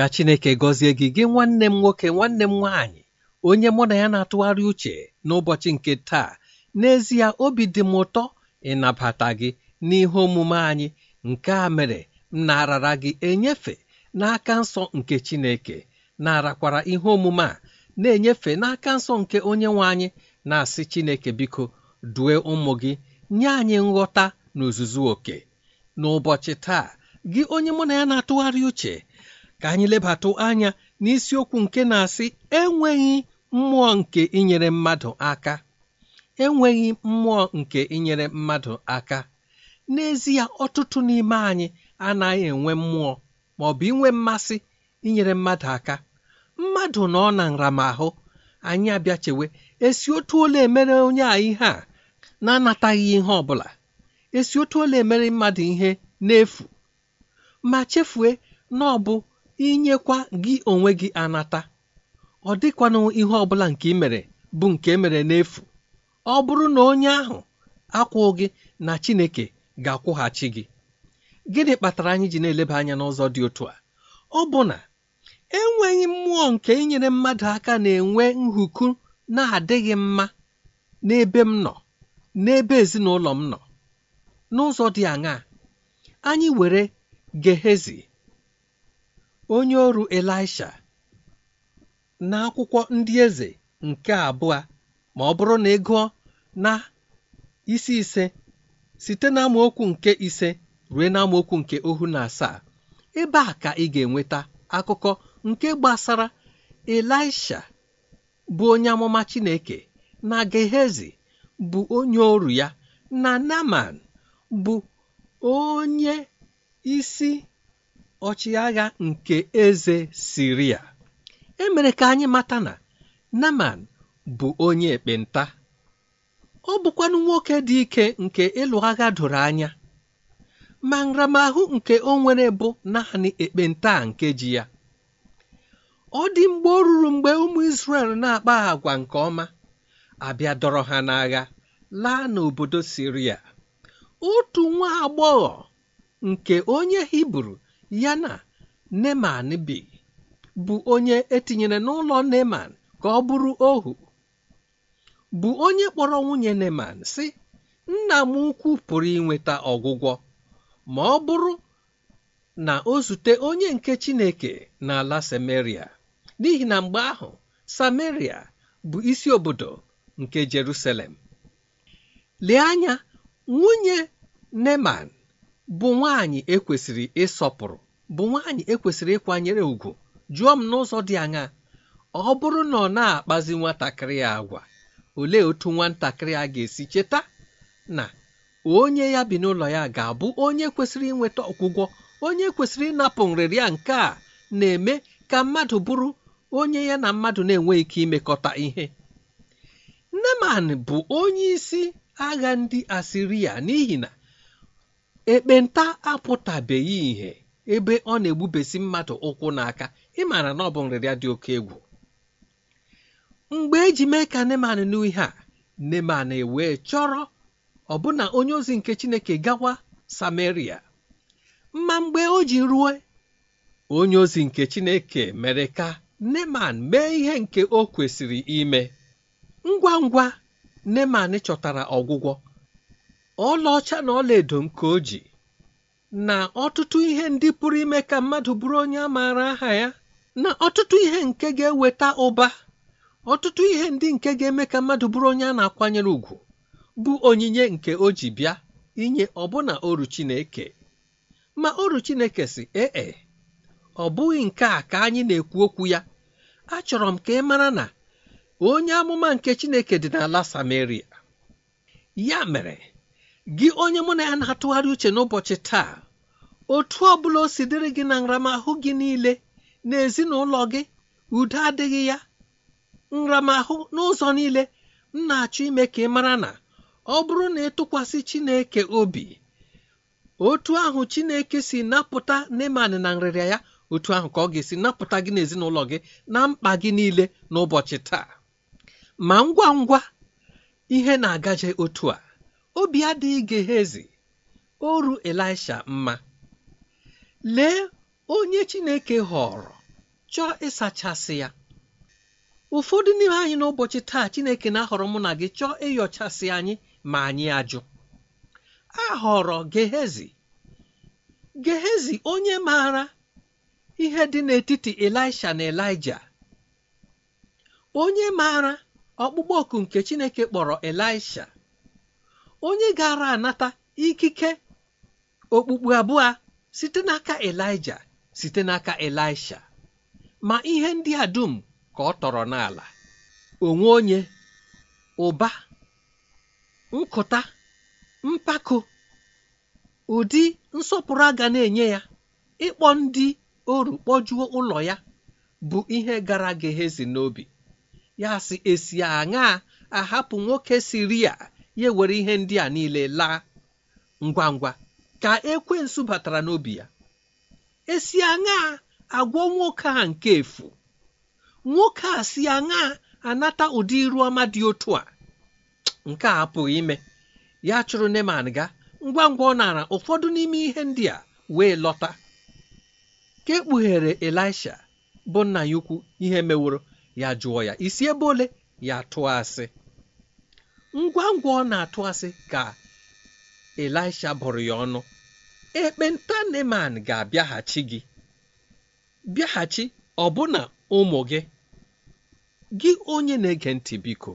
ka Chineke gọzie gị gị nwanne m nwoke nwanne m nwaanyị onye mụ na ya na-atụgharị uche n'ụbọchị nke taa n'ezie obi dị m ụtọ ịnabata gị n'ihe omume anyị nke a mere m narara gị enyefe n'aka nsọ nke Chineke narakwara ihe omume a na-enyefe n'aka nsọ nke onye nwe anyị na-asị Chineke biko due ụmụ gị nye anyị nghọta na oke n'ụbọchị taa gị onye mụ na ya na-atụgharị uche ka anyị lebatụ anya n'isiokwu nke na-asị enweghị mmụọ nke inyere mmadụ aka enweghị mmụọ nke inyere mmadụ aka n'ezie ọtụtụ n'ime anyị anaghị enwe mmụọ ma ọ bụ inwe mmasị inyere mmadụ aka mmadụ nọ na nramahụ anyị abịachewe esi otu ole emere onye a ihe a na-anataghị ihe ọ bụla esi otu ole emere mmadụ ihe n'efu ma chefue na ọ bụ inyekwa gị onwe gị anata ọ dịkwanụ ihe ọbụla nke bụ nke e mere n'efu ọ bụrụ na onye ahụ akwụ gị na Chineke ga-akwụghachi gị gịnị kpatara anyị ji na-eleba anya n'ụzọ dị otu a ọ bụ na enweghị mmụọ nke inyere mmadụ aka na-enwe nhuku na-adịghị mma n'ebe m nọ n'ebe ezinụlọ m nọ n'ụzọ dị aṅaa anyị were Gehezi onye ọrụ Elisha n'akwụkwọ ndị eze nke abụọ ma ọ bụrụ na ị gụọ na isi ise site na amaokwu nke ise ruo na amaokwu nke ohu na asaa ebe a ka ị ga-enweta akụkọ nke gbasara Elisha bụ onye amụma Chineke na Gehezi bụ onye ọrụ ya na Naman bụ onye isi ọchịagha nke eze Siria emere ka anyị mata na Naman bụ onye ekpenta ọ bụkwanụ nwoke dị ike nke ịlụ agha doro anya ma nramahụ nke o nwere bụ naanị ekpenta nke ji ya ọ dị mgbe ọ ruru mgbe ụmụ Israel na-akpa agwa nke ọma abịa dọrọ ha n'agha laa n'obodo Siria otu nwa agbọghọ nke onye Hibru ya na neman bi bụ onye etinyere n'ụlọ neman ka ọ bụrụ ohu bụ onye kpọrọ nwunye neman si nna m ukwu pụrụ inweta ọgwụgwọ ma ọ bụrụ na o zute onye nke chineke n'ala samaria n'ihi na mgbe ahụ samaria bụ isi obodo nke jerusalem lee anya nwunye neman bụ nwaanyị ekwesịrị ịsọpụrụ bụ nwaanyị ekwesịrị ịkwanyere ùgwù jụọ m n'ụzọ dị anya ọ bụrụ na ọ na-akpazi nwatakịrị agwa olee otu nwatakịrị a ga-esi cheta na onye ya bi n'ụlọ ya ga-abụ onye kwesịrị ịnweta ọgwụgwọ onye kwesịrị ịnapụ nrịrịa nke a na-eme ka mmadụ bụrụ onye ya na mmadụ na-enweghị ike imekọta ihe Neman bụ onye isi agha ndị Asiria n'ihi na ekpenta apụtabeghị ìhè ebe ọ na-egbubesi mmadụ ụkwụ n'aka ịmara na ọ bụ nrịrịa dị oke egwu mgbe eji mee ka neman nụ ihe a neman e wee chọrọ ọbụna onye ozi nke chineke gawa samaria ma mgbe o ji ruo onye ozi nke chineke mere ka neman mee ihe nke o kwesịrị ime ngwa ngwa neman chọtara ọgwụgwọ ọlaọcha na ọlaedo nke o na ọtụtụ ihe ndị pụrụ ime ka mmadụ bụrụ onye a maara aha ya na ọtụtụ ihe nke ga-eweta ụba ọtụtụ ihe ndị nke ga-eme ka mmadụ bụrụ onye a na-akwanyere ùgwù bụ onyinye nke o bịa inye ọbụna oru Chineke ma oru Chineke si ee ọ bụghị nke a ka anyị na-ekwu okwu ya achọrọ m ka ị mara na onye amụma nke Chineke dị n'ala Samaria ya mere gị onye mụ na ya na-atụgharị uche n'ụbọchị taa otu ọ bụla o si dịrị gị na nramahụ gị niile na ezinụlọ gị udo adịghị ya nramahụ n'ụzọ niile m na-achọ ime ka ị mara na ọ bụrụ na ịtụkwasị Chineke obi otu ahụ Chineke si napụta Neman na nrịrịa ya otu ahụ ka ọ ga-esi napụta gị n'ezinụlọ gị na mkpa gị niile n'ụbọchị taa ma ngwa ngwa ihe na-agaje otu a obi adịghị Gehezi oru Elisha mma lee onye Chineke họrọ chọọ ịsachasị ya ụfọdụ n'ime anyị n'ụbọchị taa Chineke na-ahọrọ mụ na gị chọọ ịyọchasị anyị ma anyị ajụ a họrọ Gehezi Gehezi onye maara ihe dị n'etiti Elisha na Elija onye maara ọkpụkpọ ọkụ nke Chineke kpọrọ Elisha onye gara anata ikike okpukpu abụọ site n'aka elija site n'aka elisha ma ihe ndị a dum ka ọ tọrọ n'ala onwe onye ụba nkụta mpako ụdị nsọpụrụ aga na-enye ya ịkpọ ndị oru kpọjuo ụlọ ya bụ ihe gara Gehezi n'obi ya e si esi aṅaa ahapụ nwoke ya ya were ihe ndị a niile laa ngwa ngwa ka ekwensu batara n'obi ya esi aṅaa agwọ nwoke a nke efu nwoke a si aṅaa anata ụdị iru ọma dị otu a nke a apụghị ime ya chụrụ neman ga ngwa ngwa ọ nara ụfọdụ n'ime ihe ndị a wee lọta ka ekpughere elisha bụ nna ya ukwu ihe meworo ya jụọ ya isi ebe ole ya tụọ asị ngwa ngwa ọ na-atụ asị ka elisha bụrụ ya ọnụ ekpenta neman ga-abịaghachi gị bịaghachi ọbụna ụmụ gị gị onye na-ege ntị biko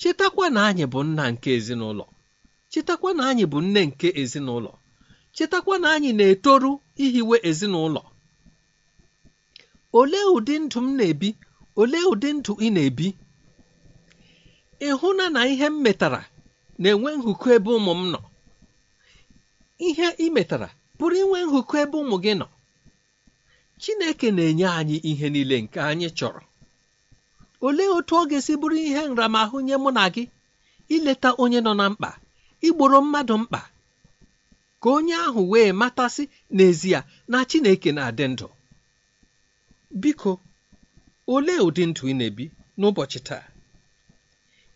chetakwa na anyị bụ nna nke ezinụlọ chetakwa na anyị bụ nne nke ezinụlọ chetakwa na anyị na-etoru ihiwe ezinụlọ olee ụdị ndụ m na-ebi olee ụdị ndụ ị na-ebi ịhụna na ihe m metara na-enwe nhụkọ ebe ụmụ m nọ ihe ị metara pụrụ inwe nhụkọ ebe ụmụ gị nọ Chineke na-enye anyị ihe niile nke anyị chọrọ olee otu ọ ga-esi bụrụ ihe nramahụ nye mụ na gị ileta onye nọ na mkpa igboro mmadụ mkpa ka onye ahụ wee matasị n'ezie na Chineke na-adị ndụ biko olee ụdị ndụ ị na-ebi n'ụbọchị taa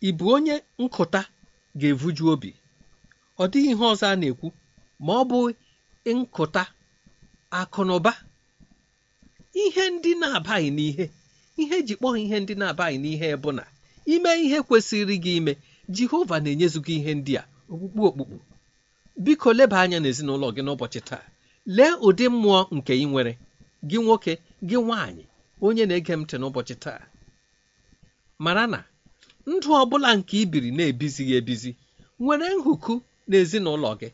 ị bụ onye nkụta ga-evuju obi ọ dịghị ihe ọzọ a na-ekwu ma ọ bụ nkụta akụnụba ihe ndị na-abaghị n'ihe ihe ji kpọọ ihe ndị na-abaghị n'ihe bụ na ime ihe kwesịrị gị ime jehova na-enyezu gị ihe ndị a okpukpu okpukpu biko leba anya n'ezinụlọ gị n'ụbọchị taa lee ụdị mmụọ nke ị nwere gị nwoke gị nwaanyị onye na-ege m ntị n'ụbọchị taa mara na ndụ ọ bụla nke ibiri na-ebizighị ebizi nwere nhụku n'ezinụlọ gị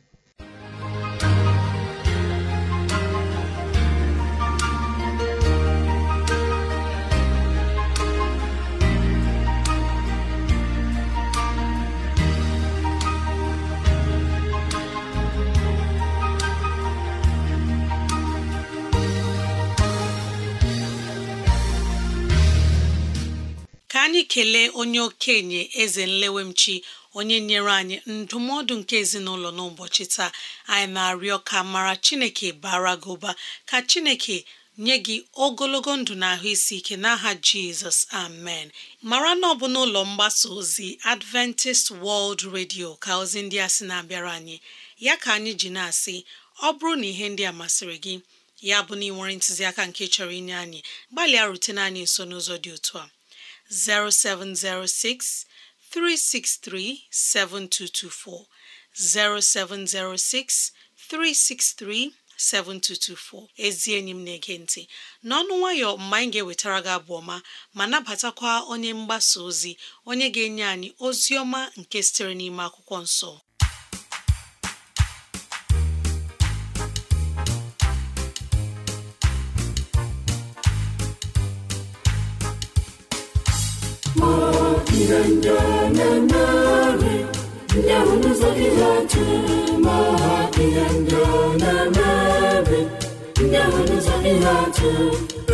anyị kelee onye okenye eze nlewemchi onye nyere anyị ndụmọdụ nke ezinụlọ n'ụbọchị taa anyị na-arịọ ka mara chineke bara gị ụba ka chineke nye gị ogologo ndụ na ahụ isi ike n'aha jizọs amen mara na ọ bụ n'ụlọ mgbasa ozi adventist world radio ka ozi ndị a sị na-abịara anyị ya ka anyị ji na-asị ọ bụrụ na ihe ndị a masịrị gị ya bụ na ị nwere ntụziaka nke chọrọ inye anyị gbalịa rutene anyị nso n'ụzọ dị otu a 0706 363 7224 0706 363 7224 ezi enyi m na-ege ntị n'ọnụ nwayọ mgbe anyị ga-ewetara gị abụ ọma ma nabatakwa onye mgbasa ozi onye ga-enye anyị ozi ọma nke sitere n'ime akwụkwọ nsọ ihendonanarị ndị ahụ n'ụzọ gị ha tụrụ ma ha ihendonanarị ndị ahụ n'ụzọ gị ha tụrụ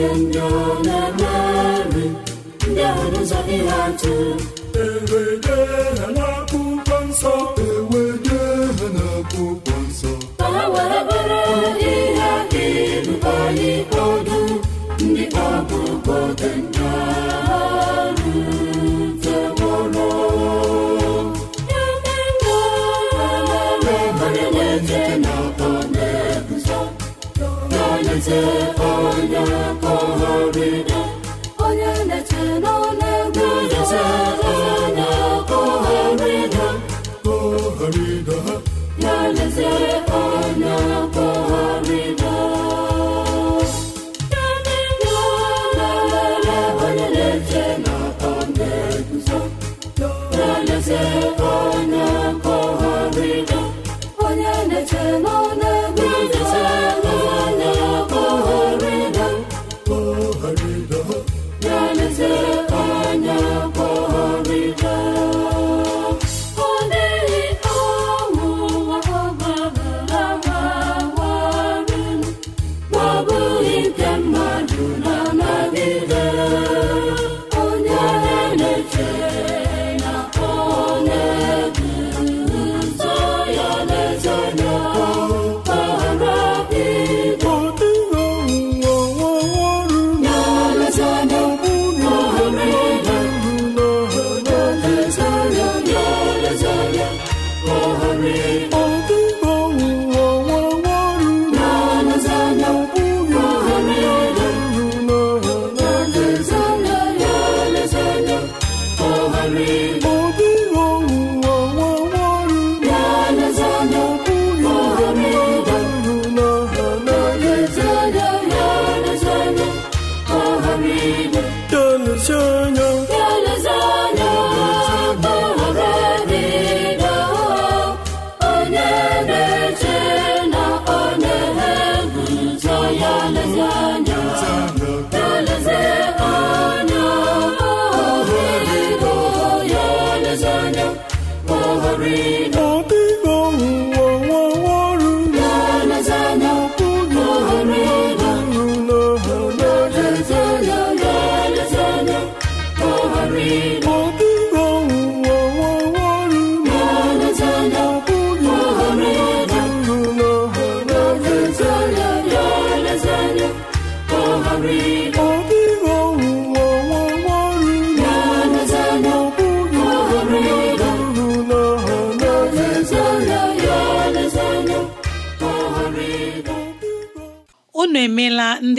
ihe ndị ọ na-emeri ndị ahụ n'ụzọ ihe atụ ewede ha n'akwụkwọ nsọ ewede nsọ ndị Joseph.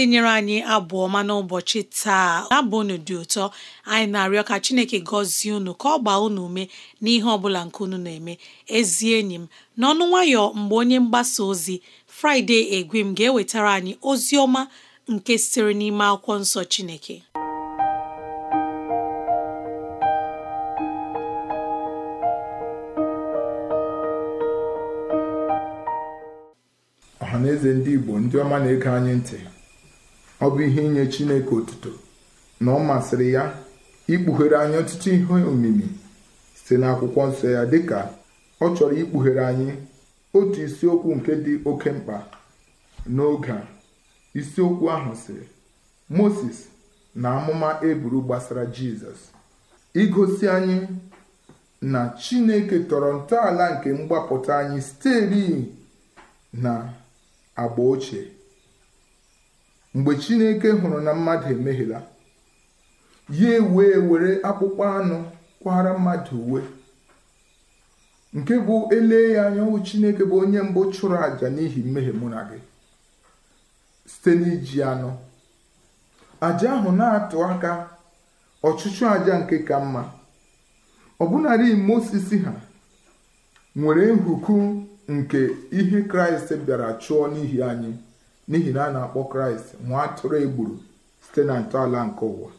ndị nyere anyị abụ ọma n'ụbọchị taa abụ unu dị ụtọ anyị na-arịọ ka Chineke gọzie unu ka ọ gbaa unu ume n'ihe ọ bụla nke unu na-eme ezi enyi m n'ọnụ nwayọọ mgbe onye mgbasa ozi Fraịde Egwim ga-ewetara anyị ozi ọma nke sitere n'ime akwụkwọ nsọ Chineke eze ndị Igbo ndị ọma na-ege anyị ntị ọ bụ ihe inye Chineke otuto na ọ masịrị ya ikpughere anyị ọtụtụ ihe omimi site n'akwụkwọ nsọ ya dịka ọ chọrọ ikpughere anyị otu isiokwu nke dị oke mkpa n'oge a isiokwu ahụ sịrị Moses na amụma eburu gbasara Jizọs igosi anyị na Chineke tọrọ ntọala nke mgbapụta anyị siteri na agba ochie mgbe chineke hụrụ na mmadụ emehiela ya wee were akpụkpọ anụ kwara mmadụ uwe nke bụ ele ya anya chineke bụ onye mbụ chụrụ àjà n'ihi mmehie mụ na gị site n'iji anọ àjà ahụ na-atụ aka ọchụchụ àjà nke ka mma ọbụnarị Mozis ha nwere nhuku nke ihe kraịst bịara chụọ n'ihi anyị n'ihi na a na-akpọ kraịst nwa atụrụ egburu site na ntọala nke ụwa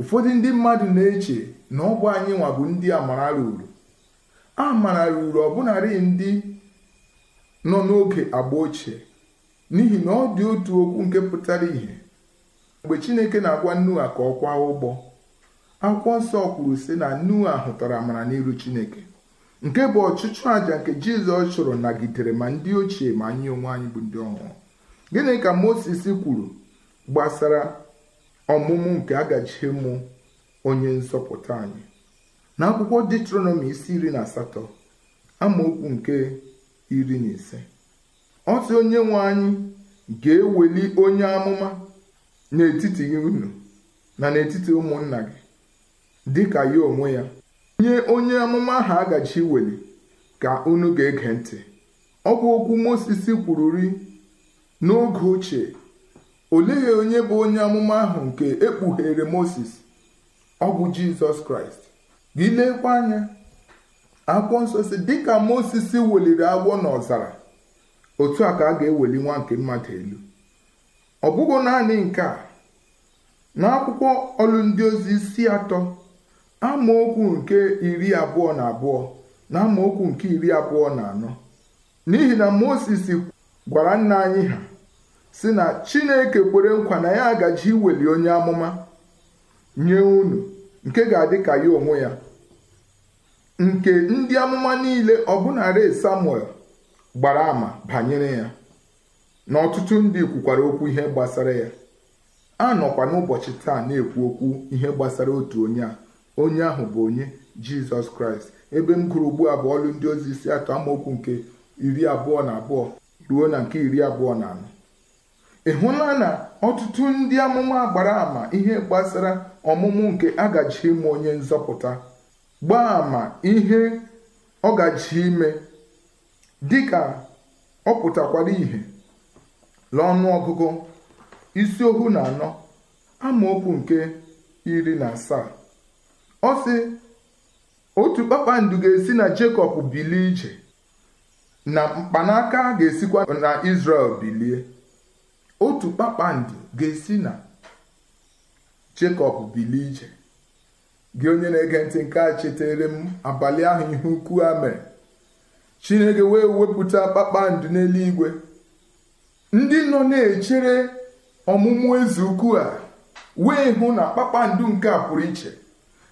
ụfọdụ ndị mmadụ na-eche na ọ bụ anyị nwa bụ ndị amara ruru a mara ruru ọbụnarị ndị nọ n'oge agba ochie n'ihi na ọ dị otu okwu nke pụtara ìhè mgbe chineke na-agwa nua ka ọ kwa ụgbọ akwụkwọ nsọ kwuru sị na nua hụtara amara n'iru chineke nke bụ ọchịchụ àjà nke jizọs chụrụ nagidere ma ndị ochie ma anyị onwe anyị bụ ndị ọhụrụ gịnị ka moses kwuru gbasara ọmụmụ nke ụmụ onye nzọpụta anyị na akwụkwọ detronomi isi iri na asatọ amaokwu nke iri na ise Otu onye nwe anyị ga-eweli onye amụma n'etiti unu na n'etiti ụmụnna gị dịka ya onwe ya nye onye amụma ahụ agachi weli ka unu ga-ege ntị ọ bụ okwu kwuru kwururi n'oge ochie olee onye bụ onye amụma ahụ nke ekpughere Moses ọ bụ Jizọs Kraịst gị lekwa anya akwụkwọ nsọ dịka Moses weliri agwọ n'ọzara otu a ka a ga-eweli nwa nke mmadụ elu ọ bụghị naanị nke a akwụkwọ ọlụ ndị ozi isi atọ amaokwu nke iri abụọ na abụọ na amaokwu nke iri abụọ na anọ n'ihi na Moses gwara nna anyị ha si na chineke kwere nkwa na ya agaji iweli onye amụma nye unu nke ga-adị ka ya onwe ya nke ndị amụma niile ọbụnarị samuel gbara ama banyere ya na ọtụtụ ndị kwukwara okwu ihe gbasara ya a nọkwa n'ụbọchị taa na-ekwu okwu ihe gbasara otu onye a onye ahụ bụ onye jizọs kraịst ebe m gụrụ ugbu a bụ ọlụ ndị ozi isi atọ amaokwu nke iri abụọ na abụọ ruo na nke iri abụọ na anọ ị hụla na ọtụtụ ndị amụma gbara ama ihe gbasara ọmụmụ nke agaji ime onye nzọpụta gbaa ama ihe ọ gaji ime dịka ọ pụtakwara ìhè n'ọnụ ọgụgụ isi ohu na anọ amaokwu nke iri na asaa ọ sị otu kpakpando ga-esi na Jekọb bilie ije na mkpanaka ga-esikwa na Izrel bilie otu kpakpando ga-esi na Jekọb bilie ije gị onye na-ege ntị nke a chetere m abalị ahụ ihe ukwu a mere Chineke wee wepụta kpakpando n'eluigwe ndị nọ na-echere ọmụmụ eze ukwu a wee hụ na kpakpando nke a pụrụ iche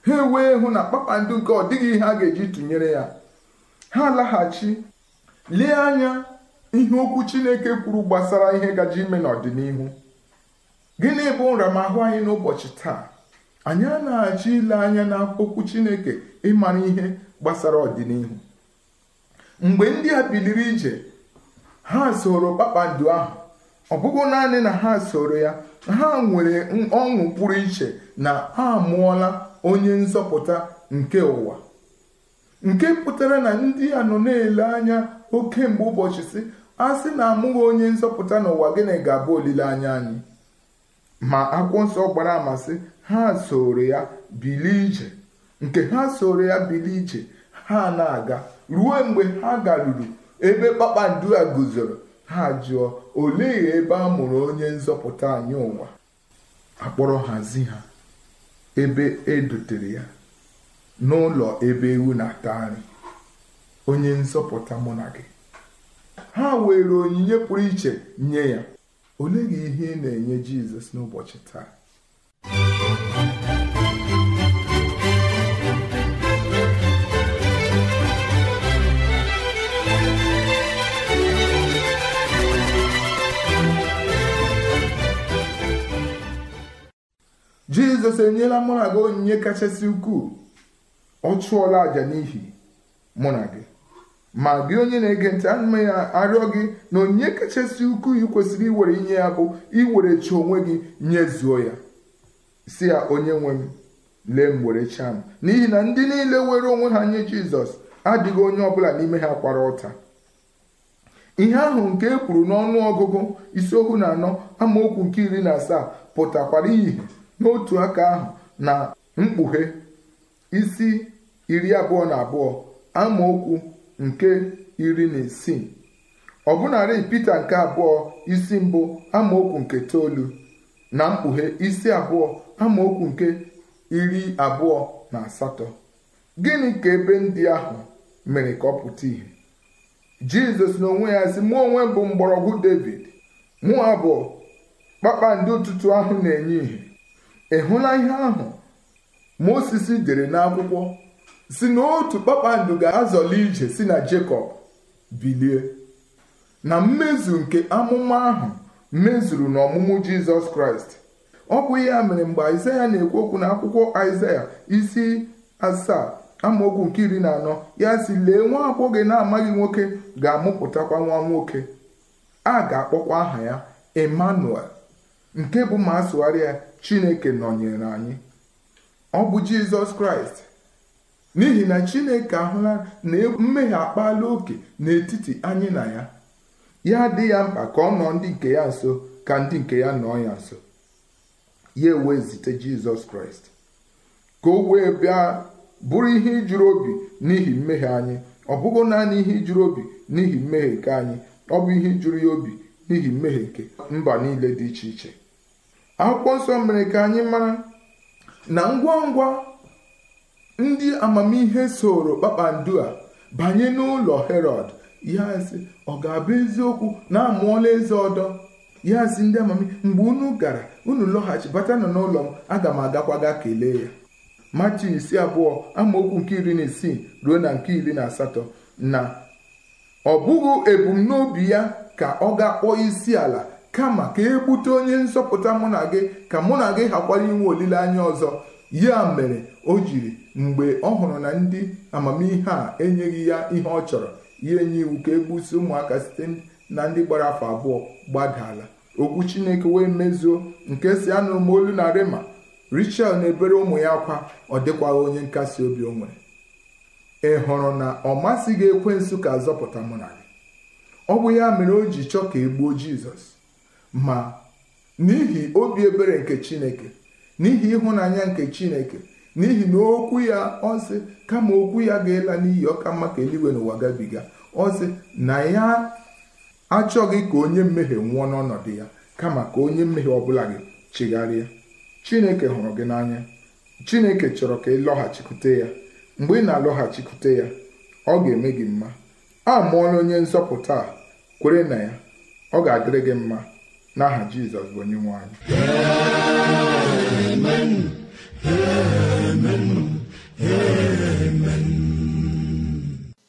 ha wee hụ na kpakpando nke ọ dịghị ihe a ga-eji tụnyere ya ha laghachi lee anya ihe okwu Chineke kwuru gbasara ihe gaji ime n'ọdịnihu gịnị bụ nramahụ anyị n'ụbọchị taa anyị a na-achọ ile anya na okwu Chineke ịmara ihe gbasara ọdịnihu mgbe ndị a biliri ije ha soro kpakpando ahụ ọ bụghị naanị na ha soro ya ha nwere ọṅụ pụrụ iche na ha mụọla onye nzọpụta nke ụwa nke pụtara na ndị a nọ na-ele anya oke mgbe ụbọchị si a sị na amụghị onye nzọpụta n'ụwa gịnị ga-abụ olileanya anyị ma akwụkwọ nsọ gbara amasị ha soro ya bilie ije nke ha soro ya bilie ije ha na-aga ruo mgbe ha garuru ebe kpakpando a guzoro ha jụọ olee ebe a mụrụ onye nzọpụta anyị ụwa akpọrọ hazi ha ebe e dotere ya n'ụlọ ebe ewu na-ata nri onye nsọpụta mụ ha were onyinye pụrụ iche nye ya ole gị ihe ị na-enye jizọs n'ụbọchị taa jizọs enyela mụ na gị onyinye kachasị ukwuu ọ chụọla àjà n'ihi mụ na gị ma gị onye na-ege ntị ana ya arịọ gị na onyinye kachasị ukwu i kwesịrị iwere inye ya bụ iwere chi onwe gị nyezuo ya si ya onye nwe m lee m were chaa m n'ihi na ndị niile were onwe ha nye jizọs adịghị onye ọbụla n'ime ha kwara ọta ihe ahụ nke e kwuru n'ọnụ ọgụgụ isiokwu na anọ amaokwu nke iri na asaa pụtakwara ihe n'otu aka ahụ na mkpughe isi iri abụọ na abụọ amaokwu nke iri na isii ọbụnarị Pita nke abụọ isi mbụ amaokwu nke toolu na mkpughe isi abụọ amaokwu nke iri abụọ na asatọ gịnị ka ebe ndị ahụ mere ka ọ pụta ìhè Jizọs n'onwe ya si mụ onwe bụ mgbọrọgwụ David mụ abụọ kpakpando ụtụtụ ahụ na-enye ìhè ị hụla ihe ahụ Moses dere n'akwụkwọ si na otu kpakpando ga-azọli ije si na jacob bilie na mmezu nke amụma ahụ mezuru n'ọmụmụ Jizọs Kraịst ọ bụ ya mere mgbe Aịzaya na-ekwu okwu na akwụkwọ Aịzaya isi asaa amaokwu nke iri na anọ ya si lee nwa agbọghọ na-amaghị nwoke ga-amụpụtakwa nwa nwoke a ga-akpọkwa aha ya Emmanuel nke bụ ma asụgharị ya Chineke nọnyere anyị ọ bụ jizọs kraịst n'ihi na chineke ahụla na e- mmehie akpala oke n'etiti anyị na ya ya dị ya mkpa ka ọ nọ ndị nke ya nso ka ndị nke ya nọ ya nso ya ewee zite jizọs kraịst ka o wee bịa bụrụ ihe ijuru obi n'ihi mmehie anyị ọ bụghị naanị ihe ijuru obi n'ihi mmehie nke anyị ọ bụ ihe ijuru ya obi n'ihi mmehie nke mba niile dị iche iche akwụkwọ nsọ mere ka anyị mara na ngwa ngwa ndị amamihe soro kpakpando a banye n'ụlọ herod ya ọ ga-abụ eziokwu na amụọla eze ọdọ ya ndị amamihe mgbe unu gara unu bata nọ n'ụlọ m aga m agakwaga kelee ya machi isi abụọ amaokwu nke iri na isii ruo na nke iri na asatọ na ọ bụghị ebumnobi ya ka ọ ga-akpọ isi ala kama ka e gbute onye nzọpụta mụ na gị ka mụ na gị hakwara inwe olileanya ọzọ ya mere o jiri mgbe ọ hụrụ na ndị amamihe a enyeghị ya ihe ọ chọrọ ya enye iwu ka e gbusi ụmụaka site na ndị gbara afọ abụọ gbadala okwu chineke wee mezuo nke si anụ m olu na rema richel na-ebere ụmụ ya akwa ọ dịkwaghị onye nkasi obi o nwere ị hụrụ na ọ gị ekwensu ka zọpụta mụ na gị ọ bụ ya mere o ji chọọ ka e gbuo jizọs ma n'ihi obi ebere nke chineke n'ihi ịhụnanya nke chineke n'ihi na okwu ya ọsị kama okwu ya ga-ela n'iyi ọka mma ka eluigwe n'ụwa gabiga ọsị na ya achọghị ka onye mmehie nwụọ n'ọnọdụ ya kama ka onye mmehie ọbụla gị chigharịa chineke hụrụ gị n'anya chineke chọrọ ka ị lọghachikwute ya mgbe ị na-alọghachikwute ya ọ ga-eme gị mma a mụọla onye nzọpụta kwere na ya ọ ga-adịrị gị mma n'aha jizọs bụ onye nwe anyị amen amen amen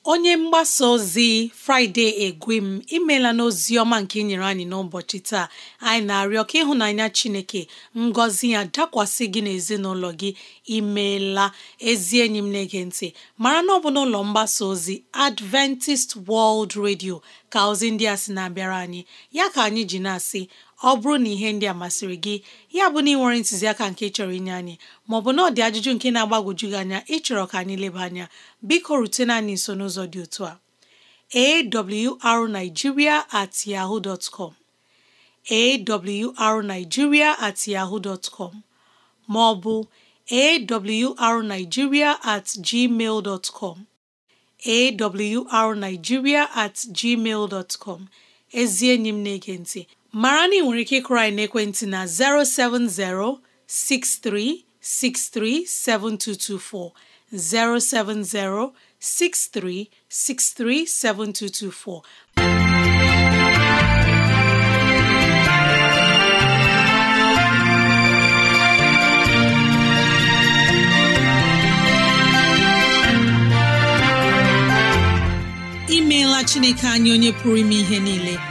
onye mgbasa ozi fraịde egwem imela n'ozi ọma nke inyere e anyị n'ụbọchị taa anyị na-arịọ ka ịhụnanya chineke ngọzi ya dakwasị gị n'ezinụlọ gị imeela ezi enyi m na ntị mara na ọ bụ n'ụlọ mgbasa ozi adventist world radio ka ozi ndị a sị na-abịara anyị ya ka anyị ji na-asị ọ bụrụ na ihe ndị a masịrị gị ya bụ na ị nwere ntụziaka nke chọrọ inye anyị maọbụ na ọ dị ajụjụ nke na-agbagwoju gị anya ịchọrọ ka anyị leba anya biko rutena anyị nso n'ụzọ dị otu a awrnigeria at yahoo dot com at yahoo dot maọbụ arigiria at gmail dot at gmail dot ezi enyi m na-ege ntị mara na ị nwere ike ịkụrụ anyị n'ekwentị na 070 6363 7224 070 6363 7224. imeela chineke anyị onye pụrụ ime ihe niile